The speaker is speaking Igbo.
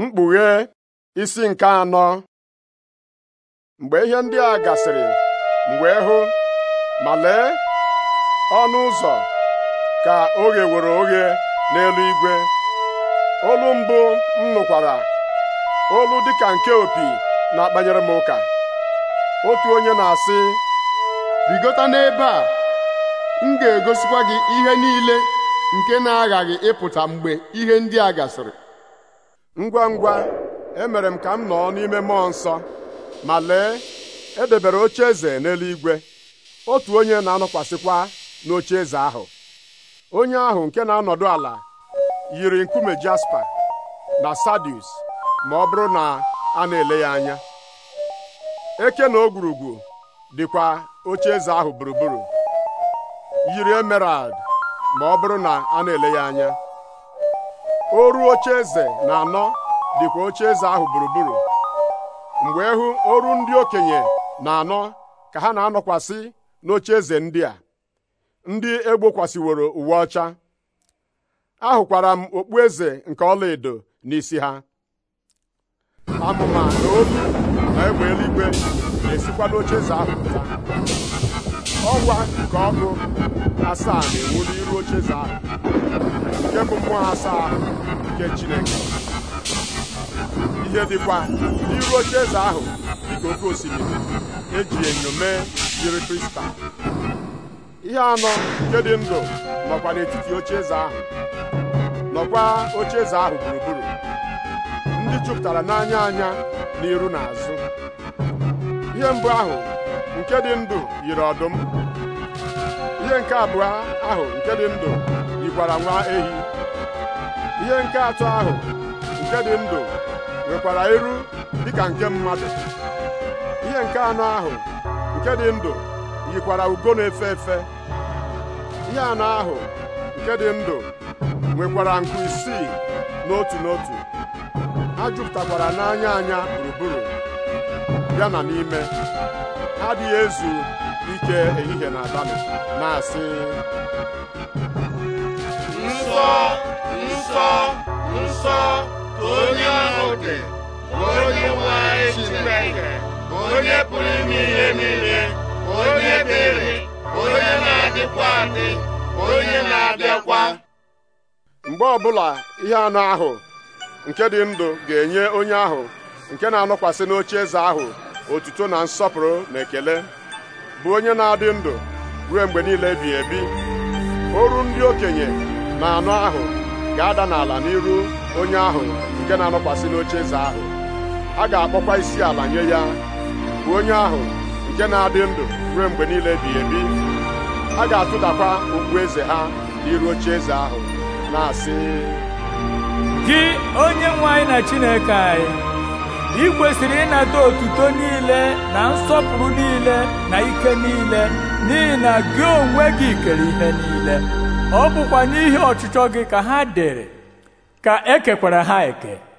mkpughe isi nke anọ mgbe ihe ndị a gasịrị mgbe hụ ma lee ọnụ ụzọ ka oge were oghe n'elu igwe olu mbụ m nụkwara olu dịka nke opi na-akpanyere m ụka otu onye na-asị rigota n'ebe a m ga-egosikwa gị ihe niile nke na-aghaghị ịpụta mgbe ihe ndị a gasịrị ngwa ngwa emere m ka m nọ n'ime mmụọ nsọ ma lee edebere oche eze n'eluigwe otu onye na-anọkwasịkwa n'oche eze ahụ onye ahụ nke na-anọdụ ala yiri nkume jaspa na sadius ma ọ bụrụ na a na-ele ya anya eke na ogwurugwu dịkwa oche eze ahụ gburugburu yiri emerald ma ọ bụrụ na a na-ele ya anya oru oche eze na anọ dịkwa oche eze ahụ gburugburu mgbe ehu oru ndị okenye na anọ ka ha na-anọkwasị n'oche eze ndị a ndị egbokwasịworo uwe ọcha ahụkwara m okpu eze nke ọlaedo n'isi ha amụma na olu na egbe eluigwe na-esikwa n'oche eze ahụ pụta ọnwa nke ọkụ asaa na-enwu n'iru oche eze ahụ nke bụ mmụọ asaa nke Chineke ihe dịkwa n'iru oche eze ahụ dịka oke osimiri eji enyo mee jiri kristal ihe anọ nke dị ndụ nọkwa n'etiti oche eze ahụ nọkwa oche eze ahụ gburugburu ndị jupụtara n'anya anya n'iru na azụ ihe mbụ ahụ nke dị ndụ yiri ọdụm ihe nke abụọ ahụ nke dị ndụ nwa ehi ihe nke atọ ahụ nke dị ndụ nwekwara iru dịka nke mmadụ ihe nke anọ ahụ nke dị ndụ yikwara ugo na-efe efe ihe anọ ahụ nke dị ndụ nwekwara nku isii n'otu n'otu ha jupụtakwara n'anya anya gburugburu ya na n'ime ha adịghị ezu ike ehihie na abalị na-asị oke onye nwe anyị Chineke onye pụrụ ime ihe niile onye ebere onye na-adịkwa adị onye na-abịakwa mgbe ọbụla ihe anụ ahụ nke dị ndụ ga-enye onye ahụ nke na-anọkwasị n'oche eze ahụ otuto na nsọpụrụ na ekele bụ onye na-adị ndụ ruo mgbe niile ebighị ebi oru ndị okenye na anụ ahụ ga-ada n'ala n'iru onye ahụ nke na-anọkwasị n'oche eze ahụ a ga-akpọkwa isi ala nye ya bụ onye ahụ nke na-adị ndụ ruo mgbe niile ebighị ebi a ga-atụdakwa okpu eze ha n'iru oche eze ahụ na-asị gị onye nwe anyị na Chineke anyị ị kwesịrị ịnata otuto niile na nsọpụrụ niile na ike niile n'ihi na gị onwe gị kere ihe niile ọ bụkwa n'ihi ọchịchọ gị ka ha dere ka e ha eke